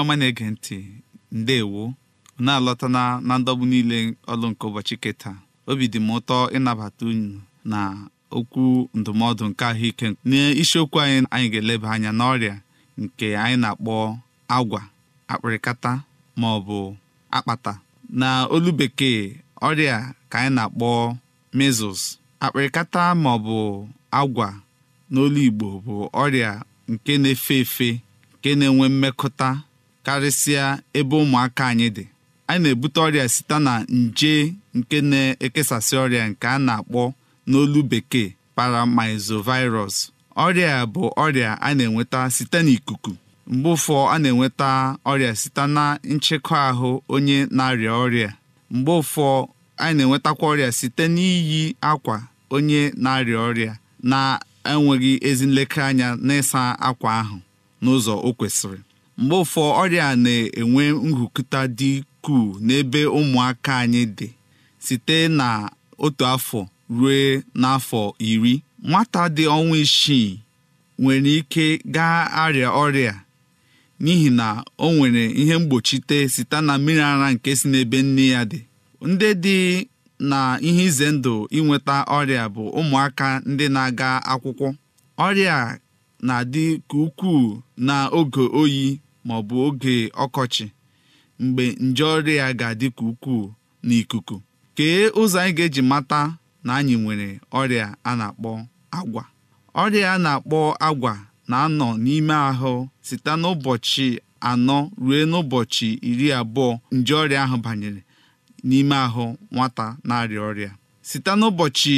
ọma na-ege ntị ndewo na-alọta na ndọgbu niile ọlụ nke ụbọchị kịta obi dị m ụtọ ịnabata unyi na okwu ndụmọdụ nke ahụike n'isiokwu anyị anyị ga-eleba anya n'ọrịa nke anyị na-akpọ agwa akpịrịkata ma ọ bụ akpata na olu bekee ọrịa ka anyị na-akpọ measles akpịrịkata ma ọ bụ agwa n'olu Igbo bụ ọrịa nke na-efe efe nke na-enwe mmekọta karịsịa ebe ụmụaka anyị dị anyị na-ebute ọrịa site na nje nke na-ekesasị ọrịa nke a na-akpọ n'olu bekee paramizovirus ọrịa bụ ọrịa a na-enweta site n'ikuku mgbe ụfọ a na-enweta ọrịa site na nchekwa ahụ onye na-arịa ọrịa mgbe ụfọ anyị na-enwetakwa ọrịa site n'iyi akwa onye na-arịa ọrịa na-enweghị ezi nlekere anya n'ịsa akwa ahụ n'ụzọ o kwesịrị mgbe ụfọ ọrịa na-enwe nhụkụta dị ukwuu n'ebe ụmụaka anyị dị site na otu afọ ruo n'afọ iri nwata dị ọnwa isii nwere ike gaa arịa ọrịa n'ihi na o nwere ihe mgbochite site na mmiri ara nke si n'ebe nne ya dị ndị dị na ihe ize ndụ inweta ọrịa bụ ụmụaka ndị na-aga akwụkwọ ọrịa na-adị ka ukwuu na oge oyi ma ọ bụ oge ọkọchị mgbe nje ọrịa ga-adị ka ukwuu n'ikuku kee ụzọ anyị ga-eji mata na anyị nwere ọrịa a na-akpọ agwa ọrịa a na-akpọ agwa na-anọ n'ime ahụ site n'ụbọchị anọ ruo n'ụbọchị iri abụọ nje ọrịa ahụ banyere n'ime ahụ nwata na-arịa ọrịa site n'ụbọchị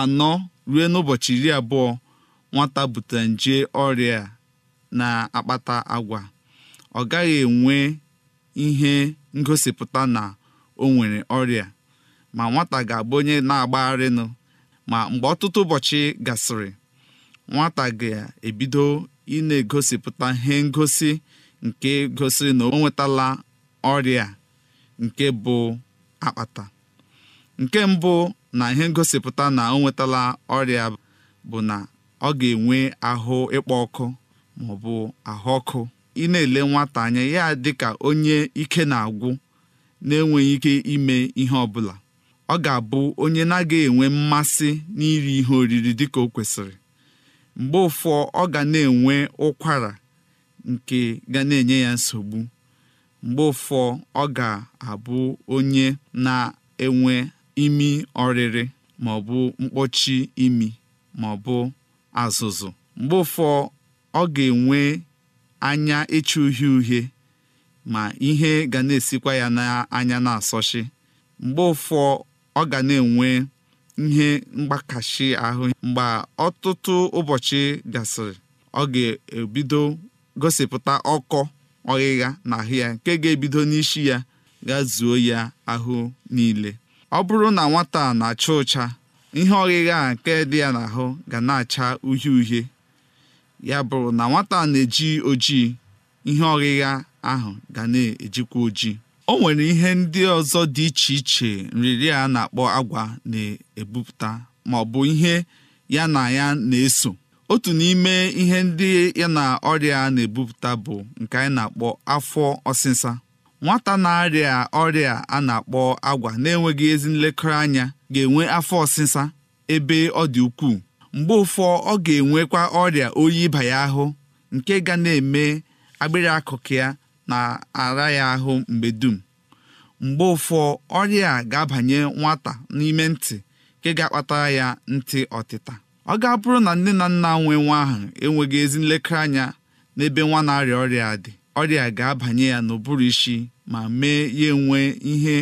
anọ ruo n'ụbọchị iri abụọ nwata butere nje ọrịa na-akpata agwa ọ gaghị enwe ihe ngosipụta na o nwere ọrịa ma nwata ga-abụ onye na-agbagharịnụ ma mgbe ọtụtụ ụbọchị gasịrị nwata ga-ebido ị na-egosipụta ihe ngosi nke gosiri na o nwetala ọrịa nke bụ akpata nke mbụ na ihe ngosipụta na o nwetala ọrịa bụ na ọ ga-enwe ahụ ịkpọ ọkụ maọbụ ahụ ọkụ ị na-ele nwata anya ya dị ka onye ike na-agwụ na-enweghị ike ime ihe ọ bụla ọ ga-abụ onye na-agaghị enwe mmasị n'iri ihe oriri dịka o kwesịrị mgbe ụfọ ọ ga na-enwe ụkwara nke ga na-enye ya nsogbu mgbe ụfọ ọ ga-abụ onye na-enwe imi ọrịrị ma mkpọchi imi ma azụzụ mgbe ụfọ ọ ga-enwe anya ịchụ uhie uhie ma ihe ga na-esikwa ya n'anya na-asọchi mgbe ụfọ ọ ga na-enwe ihe mgbakashi ahụ mgbe ọtụtụ ụbọchị gasịrị ọ ga-ebido gosipụta ọkọ ọghịgha ahụ ya nke ga-ebido n'isi ya ga zuo ya ahụ niile ọ bụrụ na nwata na-acha ụcha ihe ọghịgha nke dị ya n'ahụ ga na-acha uhie uhie ya bụrụ na nwata na-eji ojii ihe ọghịgha ahụ ga na-ejikwa ojii o nwere ihe ndị ọzọ dị iche iche nrịrị a na-akpọ agwa na-ebupụta ma ọ bụ ihe ya na ya na-eso otu n'ime ihe ndị ya na ọrịa na-ebupụta bụ nke anyị na-akpọ afọ ọsịsa nwata na-arịa ọrịa a na-akpọ agwa na-enweghị ezi nlekọta anya ga-enwe afọ ọsịsa ebe ọ dị ukwuu mgbe ụfọ ọ ga-enwekwa ọrịa oyi ịba ya ahụ nke ga na-eme agbịrị akụkụ ya na-ara ya ahụ mgbe dum mgbe ụfọ ọrịa a ga-abanye nwata n'ime ntị nke ga-akpatara ya ntị ọtịta ọ ga-abụrụ na nne na nna nwe nwa ahụ enweghị ezi nlekere anya n'ebe nwa na-arịa ọrịa dị ọrịa ga-abanye ya n'ụbụrụ isi ma mee ya enwe ihe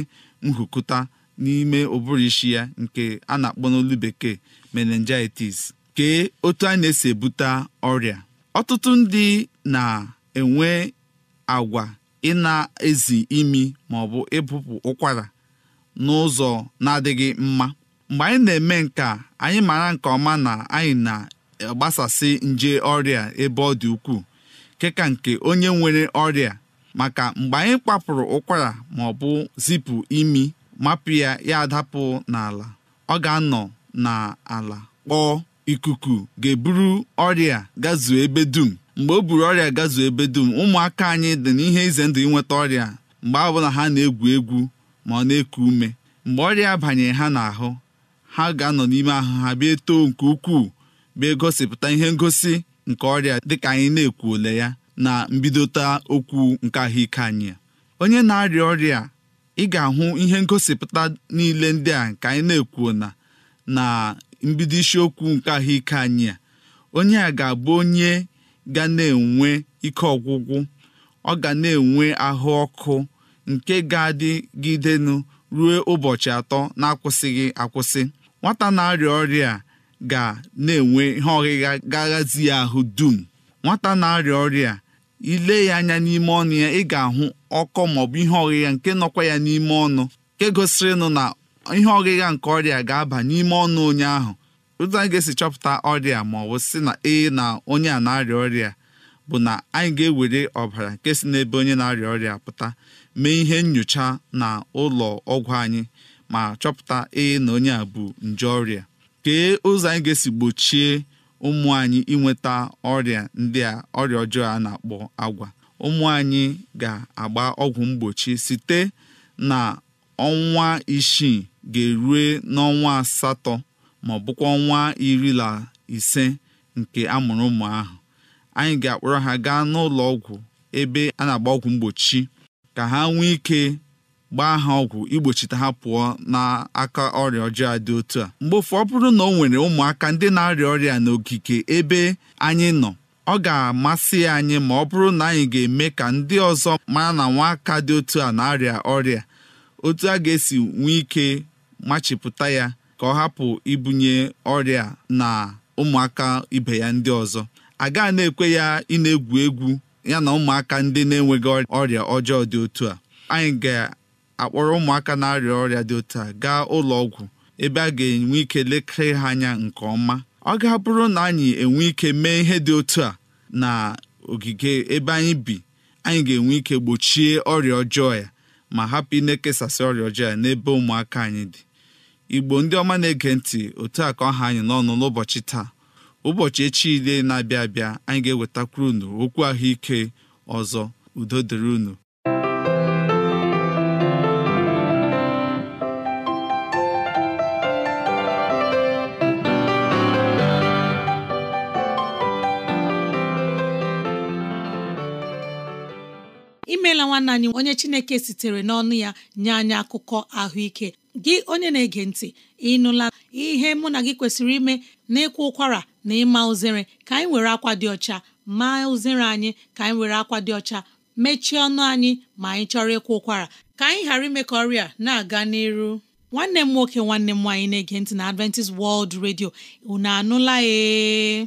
nhụkụta n'ime ụbụrụ isi ya nke a na-akpọ n'olu bekee meningitis kee otu a na-esi ebute ọrịa ọtụtụ ndị na-enwe agwa ị na-ezi imi maọbụ ịbụpụ ụkwara n'ụzọ na-adịghị mma mgbe anyị na-eme nke a anyị mara nke ọma na anyị na-agbasasị nje ọrịa ebe ọ dị ukwuu keka nke onye nwere ọrịa maka mgbe anyị kpapụrụ ụkwara maọbụ zipụ imi mapụ ya ya adapụ n'ala ọ ga-anọ na ala kpọọ ikuku ga-eburu ọrịa gazuo ebe dum mgbe o buru ọrịa gazuo ebe dum ụmụaka anyị dị n'ihe ize ndụ ịnweta ọrịa mgbe ọbụla ha na-egwu egwu ma ọ na-eku ume mgbe ọrịa banyere ha n'ahụ ha ga-anọ n'ime ahụ ha bịa too nke ukwuu bịa gosipụta ihe ngosi nke ọrịa dịka anyị na-ekwuole ya na mbidota okwu nke ahụike anyị onye na-arịa ọrịa ị ga-ahụ ihe ngosipụta niile ndị a nke anyị na-ekwuo na na mbido isiokwu nke ahụike anyị a onye a ga-abụ onye ga na-enwe ike ọgwụgwụ ọ ga na-enwe ahụ ọkụ nke ga-adịgidenụ ruo ụbọchị atọ na-akwụsịghị akwụsị nwata na-arịa ọrịa ga na-enwe ihe ọghịgha gaghazi ya ahụ dum nwata na-arịa ọrịa ile ya anya n'ime ọnụ ya ị ga-ahụ ọkọ maọbụ ihe ọghịgha nke nọkwa ya n'ime ọnụ nke nụ na ihe ọgịga nke ọrịa ga-aba n'ime ọnụ onye ahụ otu anyị ga-esi chọpụta ọrịa ma ọ bụ si na ee na onye a na-arịa ọrịa bụ na anyị ga-ewere ọbara nke si n'ebe onye na-arịa ọrịa pụta mee ihe nyocha na ụlọ ọgwụ anyị ma chọpụta ee na onye a bụ nje ọrịa kee ụzọ anyị ga-esi gbochie ụmụ anyị inweta ọrịa ndị a ọrịa ọjọọ a na-akpọ agwa ụmụ anyị ga-agba ọgwụ mgbochi site na ọnwa isii ga-erue n'ọnwa asatọ ma ọ bụkwa ọnwa iri na ise nke amụrụ ụmụ ahụ anyị ga-akpọrọ ha gaa n'ụlọ ọgwụ ebe a na-agba ọgwụ mgbochi ka ha nwee ike gbaa ha ọgwụ igbochite ha pụọ n'aka ọrịa ọjọọ dị otu a mgbe ofu ọ bụrụ na o nwere ụmụaka ndị na-arịa ọrịa n'ogige ebe anyị nọ ọ ga-amasị anyị ma ọ bụrụ na anyị ga-eme ka ndị ọzọ mara na nwaka dị otu a na-arịa ọrịa otu a ga-esi nwee ike machipụta ya ka ọ hapụ ibunye ọrịa na ụmụaka ibe ya ndị ọzọ a gaa na-ekwe ya ị na-egwu egwu ya na ụmụaka ndị na-enweghị ọrịa ọjọọ dị otu a anyị ga-akpọrọ ụmụaka na-arịa ọrịa dị otu a gaa ụlọ ọgwụ ebe a ga-enwe ike lekere ha anya nke ọma ọ ga-abụrụ na anyị enwe ike mee ihe dị otu a na ogige ebe anyị bi anyị ga-enwe ike gbochie ọrịa ọjọọ ya ma hapụ ịna na-ekesasị ọrịa ọjọọ ya n'ebe ụmụaka anyị dị igbo ndị ọma na-ege ntị otu a ka ọ anyị n'ọnụ n'ụbọchị taa ụbọchị echi ile na-abịa abịa anyị ga-ewetakwuru unu okwu ahụike ọzọ udo dịrị unu emeela nwanne anyị onye chineke sitere n'ọnụ ya nye anyị akụkọ ahụike gị onye na-ege ntị ịnụla ihe mụ na gị kwesịrị ime na ịkwa ụkwara na ịma uzere ka anyị were akwa dị ọcha maa uzere anyị ka anyị were akwa dị ọcha mechie ọnụ anyị ma anyị chọrọ ịkwa ụkwara ka anyị ghara ime ka ọrịa na-aga n'iru nwanne m nwoke nwanne m nwaanyị na-ege ntị na Adventist World redio unu anụla ee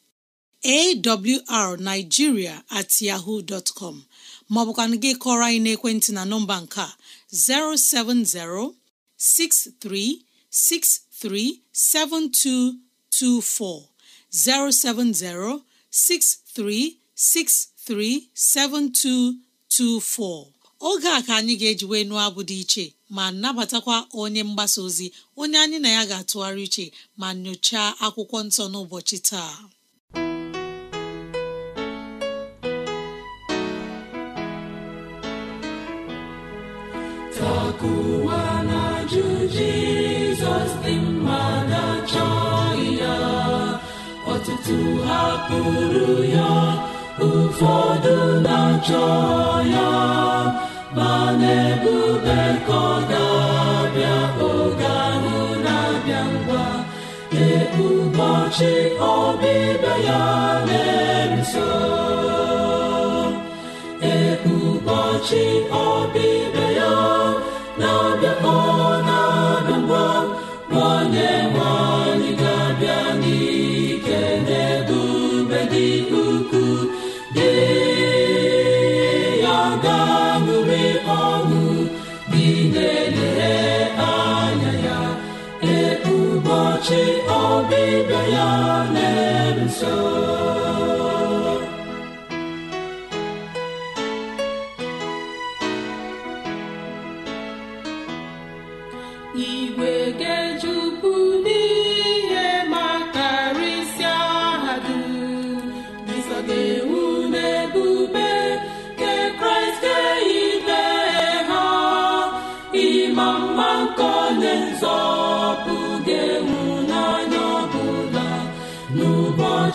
awrnigeria at yahoo dot com maọbụkwanụ gị kọrọ anyị n'ekwentị na nọmba nke a 07063637224 7224 oge a ka anyị ga-eji wee nụọ abụ dị iche ma nabatakwa onye mgbasa ozi onye anyị na ya ga-atụgharị iche ma nyochaa akwụkwọ nsọ n'ụbọchị taa Isak ụwa na-ajụ Jizọs dị na-achọ ya ọtụtụ hapụrụ ya ụfọdụ na-achọ ya ma na-ebube ka ọ ga-abịa oge ahụ na-abịa ngwa ee ụbọchị ọbịbịa ya na ibe ya na-eso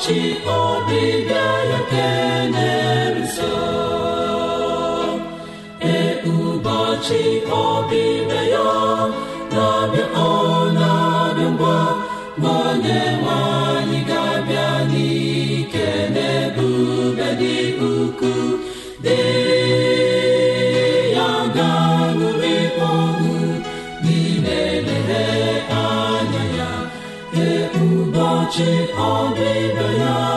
ụbọchị ọbịbịa ya kenerụso ee ụbọchị ọbịbịa ya na ụbọchị ọbịbịa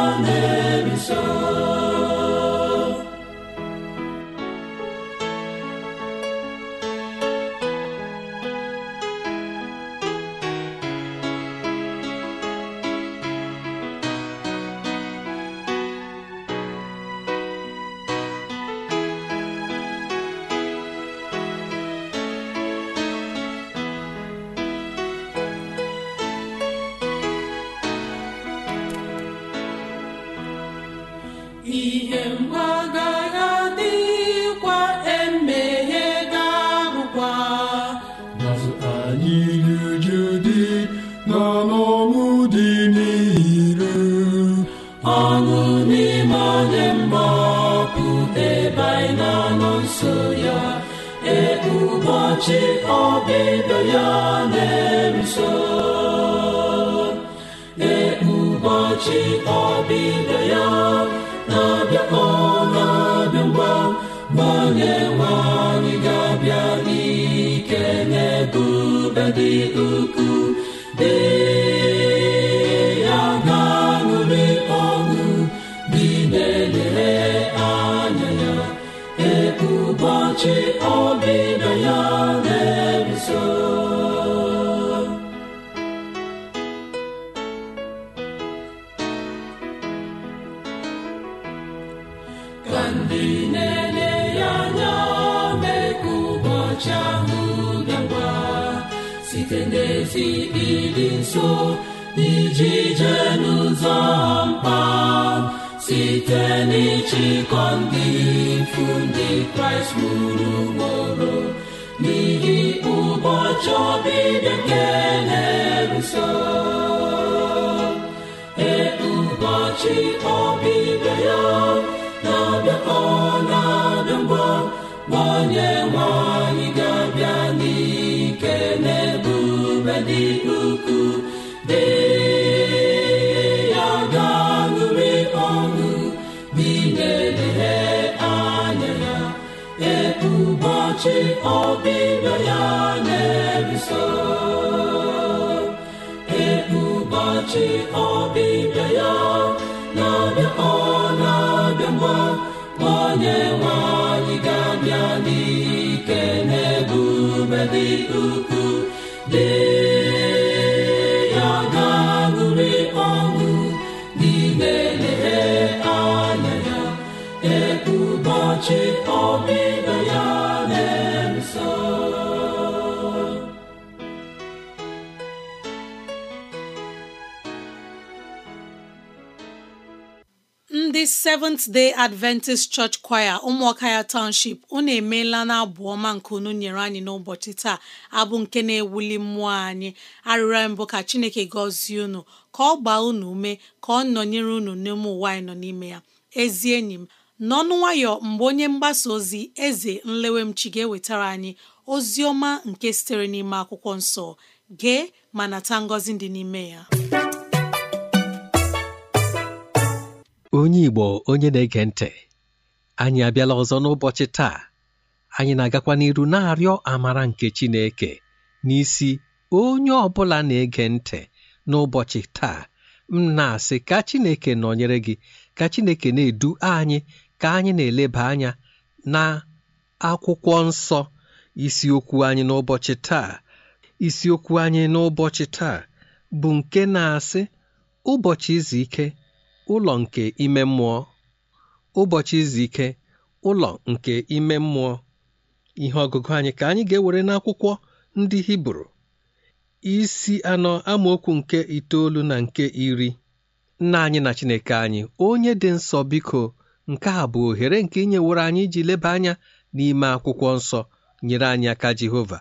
and onye nso n'ijije n'ụzọ mkpa site n'ịchịkọ ndị ikwu ndị kraịst gburu ugboro n'ihi ụbọchị ọbịbịa nke na-eruso e, ụbọchị ọbịbịa ya na abịakọ na-abịa ngwa nwa ọbịbịa ya na-eruso ebụbọchị ọbịbịa ya na-abịa ọ na-abịa mgba onye nwanyị ga-abịa n'ike n'ebube dị ukwuu dị Seventh Day Adventist Church Choir ụmụọka ya Township unu emeela na abụ ọma nke unu nyere anyị n'ụbọchị taa abụ nke na-ewuli mmụọ anyị arịrịọ mbụ ka Chineke gọzie unu ka ọ gbaa unu ume ka ọ nọnyere unu n'ime ụwa anyị nọ n'ime ya ezi enyi m n'ọnụ nwayọ mgbe onye mgbasa ozi eze nlewemchi ga-ewetara anyị ozi ọma nke sitere n'ime akwụkwọ nsọ gee ma nata ngọzi dị n'ime ya onye Igbo onye na-ege ntị anyị abịala ọzọ n'ụbọchị taa anyị na-agakwa n'iru na-arịọ amara nke Chineke n'isi onye ọ bụla na-ege ntị n'ụbọchị taa m na-asị ka Chineke nọnyere gị ka Chineke na-edu anyị ka anyị na-eleba anya na akwụkwọ nsọ isiokwu anyị n'ụbọchị taa isiokwu anyị n'ụbọchị taa bụ nke na-asị ụbọchị izu ike ụlọ nke ime mmụọ ụbọchị izu ike ụlọ nke ime mmụọ ihe ọgụgụ anyị ka anyị ga-ewere n'akwụkwọ ndị hibru isi anọ amaokwu nke itoolu na nke iri nna anyị na chineke anyị onye dị nsọ biko nke a bụ ohere nke inyeworo anyị iji leba anya n'ime akwụkwọ nsọ nyere anyị aka jehova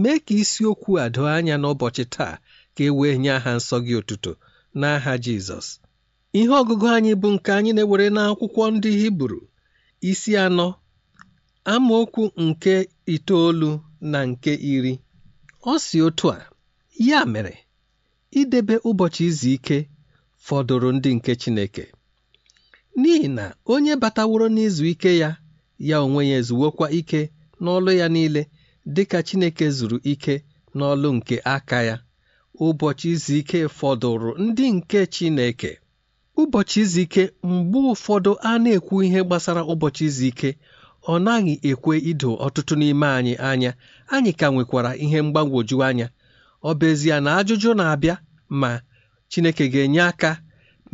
mee ka isiokwu a doo anya n'ụbọchị taa ka e wee nye aha nsọ gị otuto n'aha jizọs Ihe ọgụgụ anyị bụ nke anyị na-ewere n'akwụkwọ ndị Hibru isi anọ amaokwu nke itoolu na nke iri ọ si otu a ya mere idebe ụbọchị izu ike fọdụrụ ndị nke Chineke n'ihi na onye bataworo n'izu ike ya ya onwe ya ezuwokwa ike n'ọlụ ya niile dịka Chineke zuru ike n'ọlụ nke aka ya ụbọchị izu ike fọdụrụ ndị nke Chineke ụbọchị izu ike mgbe ụfọdụ a na-ekwu ihe gbasara ụbọchị izu ike ọ naghị ekwe ido ọtụtụ n'ime anyị anya anyị ka nwekwara ihe mgbagwoju anya ọ bụezie na ajụjụ na-abịa ma Chineke ga-enye aka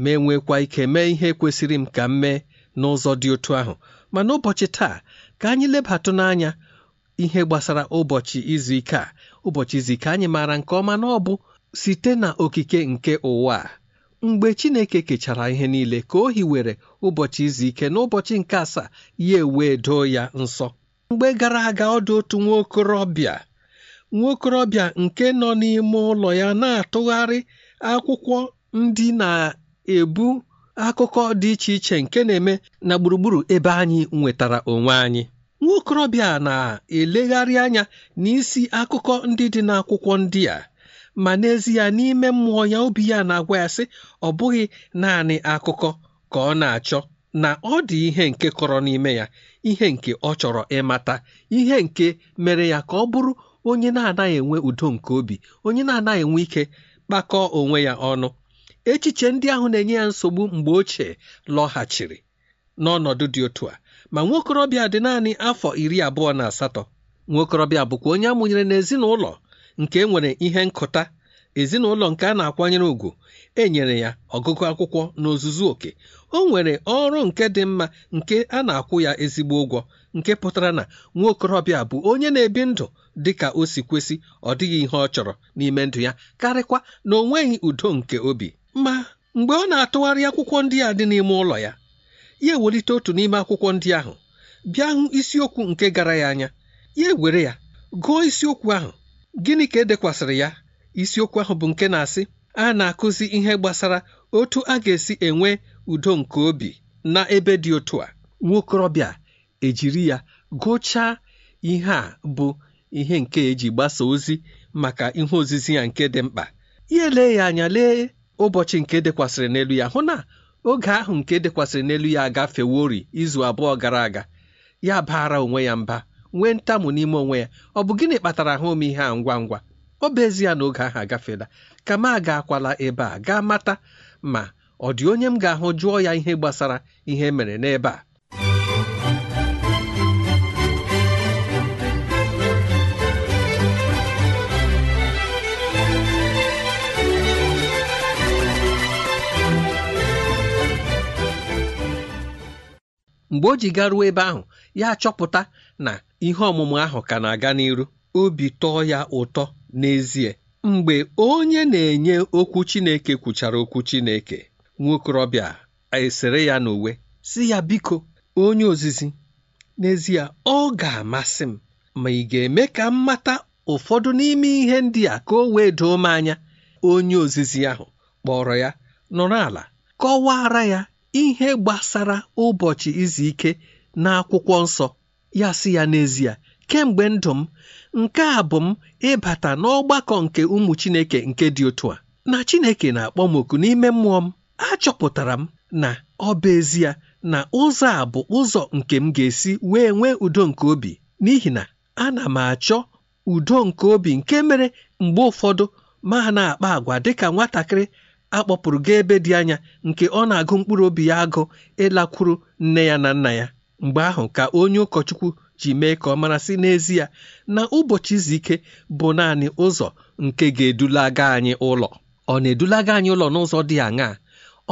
ma enwekwa ike mee ihe kwesịrị m ka m mee n'ụzọ dị otu ahụ ma n'ụbọchị taa ka anyị lebatụ n'anya ihe gbasara ụbọchị izu ike a ụbọchị izu ike anyị maara nke ọma na ọ bụ site na okike nke ụwa mgbe chineke kechara ihe niile ka o hiwere ụbọchị izu ike n'ụbọchị nke asaa ya ewee doo ya nsọ mgbe gara aga ọdụ otu nwa okorobịa nwa okorobịa nke nọ n'ime ụlọ ya na-atụgharị akwụkwọ ndị na-ebu akụkọ dị iche iche nke na-eme na gburugburu ebe anyị nwetara onwe anyị nwa na-elegharị anya n'isi akụkọ ndị dị n'akwụkwọ ndị a ma n'ezie n'ime mmụọ ya obi ya na-agwa ya sị ọ bụghị naanị akụkọ ka ọ na-achọ na ọ dị ihe nke kọrọ n'ime ya ihe nke ọ chọrọ ịmata ihe nke mere ya ka ọ bụrụ onye na-anaghị enwe udo nke obi onye na-anaghị enwe ike kpakọọ onwe ya ọnụ echiche ndị ahụ na-enye ya nsogbu mgbe ochie lọghachiri n'ọnọdụ dị otu a ma nwokorobịa dị naanị afọ iri abụọ na asatọ nwokorobịa bụkwa onye amụnyere n'ezinụlọ nke e nwere ihe nkụta ezinụlọ nke a na-akwanyere ugwu enyere ya ọgụgụ akwụkwọ na oke o nwere ọrụ nke dị mma nke a na-akwụ ya ezigbo ụgwọ nke pụtara na nwa okorobịa bụ onye na-ebi ndụ dị ka o si kwesị ọ dịghị ihe ọ chọrọ n'ime ndụ ya karịkwa na o nweghị udo nke obi ma mgbe ọ na-atụgharị akwụkwọ ndị a dị n'ime ụlọ ya ya ewelite otu n'ime akwụkwọ ndị ahụ bịa hụ isiokwu nke gara ya anya ya ewere ya gụọ isiokwu ahụ gịnị ka edekwasịrị ya isiokwu ahụ bụ nke na-asị a na-akụzi ihe gbasara otu a ga-esi enwe udo nke obi na ebe dị otu a nwokorobịa ejiri ya gụchaa ihe a bụ ihe nke eji gbasa ozi maka ihe ozizi ya nke dị mkpa ya lee ya anya lee ụbọchị nke dekwasịrị n'elu ya hụ na oge ahụ nke dekwasịrị n'elu ya agafeworị izu abụọ gara aga ya baara onwe ya mba nwee ntamu n'ime onwe ya ọ bụ gịnị kpatara ha ome ihe a ngwa ngwa ọ bụ ya na oge ahụ agafeela ka m akwala ebe a gaa mata ma ọ dị onye m ga-ahụ jụọ ya ihe gbasara ihe e mere n'ebe a mgbe o ji garuo ebe ahụ ya chọpụta na ihe ọmụmụ ahụ ka na-aga n'iru obi tọọ ya ụtọ n'ezie mgbe onye na-enye okwu Chineke kwuchara okwu Chineke nwokorobịa esere ya n'uwe si ya biko onye ozizi n'ezie ọ ga-amasị m ma ị ga-eme ka m mata ụfọdụ n'ime ihe ndị a ka o wee doo m anya onye ozizi ahụ kpọrọ ya nọrọ ala kọwara ya ihe gbasara ụbọchị izu ike n'akwụkwọ nsọ ya sị ya n'ezie kemgbe ndụ m nke a bụ m ịbata n'ọgbakọ nke ụmụ Chineke nke dị otu a na Chineke na-akpọ m oku n'ime mmụọ m achọpụtara m na ọ bụ ezie na ụzọ a bụ ụzọ nke m ga-esi wee nwee udo nke obi n'ihi na ana m achọ udo nke obi nke mere mgbe ụfọdụ ma na-akpa agwa dịka nwatakịrị akpọpụrụ ebe dị anya nke ọ na-agụ mkpụrụ obi ya agụ ịlakwuru nne ya na nna ya mgbe ahụ ka onye ụkọchukwu ji mee ka ọ mara sị n'ezie na ụbọchị izu ike bụ naanị ụzọ nke ga-edulaga anyị ụlọ ọ na-edulaga anyị ụlọ n'ụzọ dị aṅaa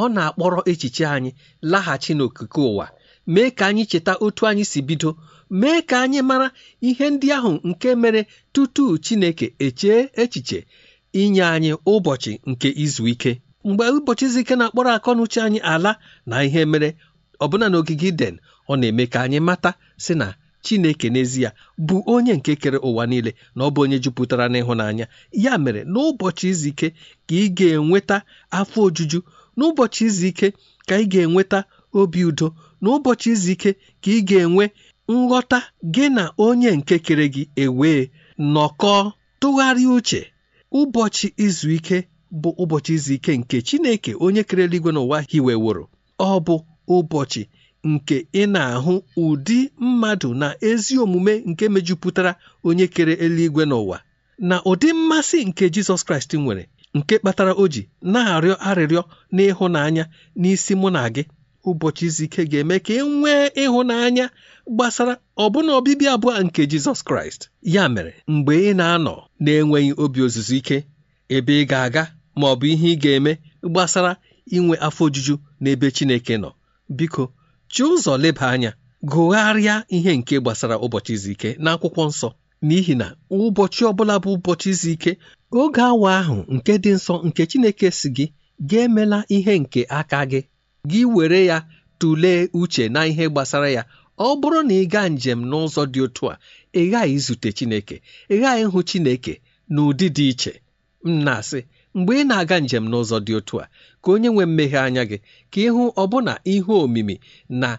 ọ na-akpọrọ echiche anyị laghachi n'okike ụwa mee ka anyị cheta otu anyị si bido mee ka anyị mara ihe ndị ahụ nke mere tutu Chineke echee echiche inye anyị ụbọchị nke izu ike mgbe ụbọchị izu ike na-akpọrọ akọnuche anyị ala na ihe mere ọbụna n'ogige iden ọ na-eme ka anyị mata sị na chineke n'ezie bụ onye nke kere ụwa niile na ọ bụ onye jupụtara n'ịhụnanya ya mere n'ụbọchị izu ike ka ị ga-enweta afọ ojuju n'ụbọchị izu ike ka ị ga-enweta obi udo n'ụbọchị izu ike ka ị ga-enwe nghọta gị na onye nke kere gị ewee nọkọọ tụgharịa uche ụbọchị izu ike bụ ụbọchị izu ike nke chineke onye kere eluigwe n'ụwa hiweworo ọ bụ ụbọchị nke ị na-ahụ ụdị mmadụ na ezi omume nke mejupụtara onye kere eluigwe n'ụwa na ụdị mmasị nke Jizọs Kraịst nwere nke kpatara o ji na-arịọ arịrịọ n'ịhụnanya n'isi mụ na gị ụbọchị izu ike ga-eme ka ị nwee ịhụnanya gbasara ọbụna ọbịbịa abụọ nke Jizọs Kraịst ya mere mgbe ị na-anọ na-enweghị obi ozuzu ike ebe ị ga-aga ma ọ bụ ihe ị ga-eme gbasara inwe afọ ojuju n'ebe Chineke nọ biko chi ụzọ leba anya gụgharịa ihe nke gbasara ụbọchị izu ike n'akwụkwọ nsọ n'ihi na ụbọchị ọbụla bụ ụbọchị izu ike oge awa ahụ nke dị nsọ nke Chineke si gị ga-emela ihe nke aka gị gị were ya tụlee uche na ihe gbasara ya ọ bụrụ na ị gaa njem n'ụzọ dị otu a ị ghaghị izute Chineke ị ghaghị ịhụ Chineke n'ụdị dị iche m na-asị mgbe ị na-aga njem n'ụzọ dị otu a ka onye nwe mmeghe anya gị ka ịhụ ọbụna ihe omimi na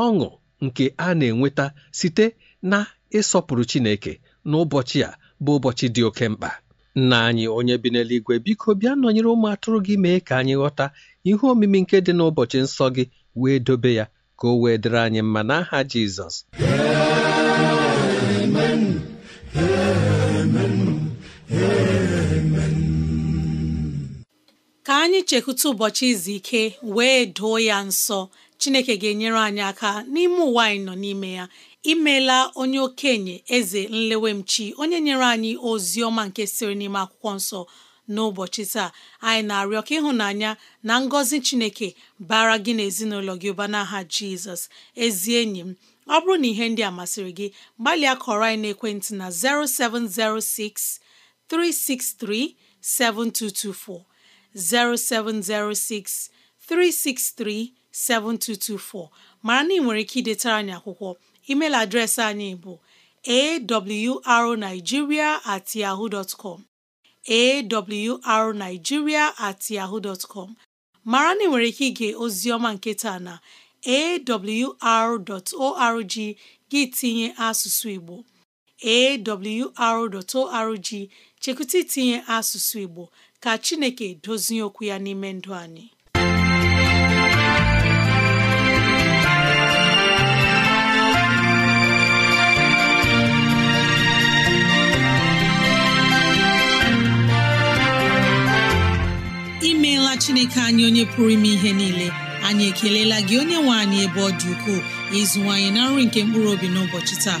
ọṅụ nke a na-enweta site na ịsọpụrụ Chineke n'ụbọchị a bụ ụbọchị dị oke mkpa nna anyị onye bi n'eluigwe biko bịa nọnyere ụmụ atụrụ gị mee ka anyị ghọta ihe omimi nke dị n'ụbọchị nsọ gị wee dobe ya ka o wee dịrị anyị mma n'aha Jizọs anyị ch'ekwute ụbọchị izu ike wee doo ya nsọ Chineke ga-enyere anyị aka n'ime ụwa anyị nọ n'ime ya imeela onye okenye eze nlewemchi onye nyere anyị ozi ọma nke siri n'ime akwụkwọ nsọ n'ụbọchị taa anyị na-arịọ ka ịhụnanya na ngọzi Chineke bara gị na ezinụlọ gị ụba n'aha Jizọs ezi enyi m ọ bụrụ na ihe ndị a masịrị gị gbalịa kọrọ anyị n'ekwentị na 0706 363 7224 0706 363 7224 mara na ị nwere ike idetara anyị akwụkwọ email adreesị anyị bụ awrnigeria at yahoo dot com awrnigeria at yahoo dot com mara na ị nwere ike ige oziọma nke taa na awr.org gị tinye asụsụ Igbo awr.org chekụta itinye asụsụ Igbo ka chineke dozie okwu ya n'ime ndụ anyị imeela chineke anyị onye pụrụ ime ihe niile anyị ekelela gị onye nwe anyị ebe ọ dị ukwuu ịzụwanyị na nri nke mkpụrụ obi n'ụbọchị taa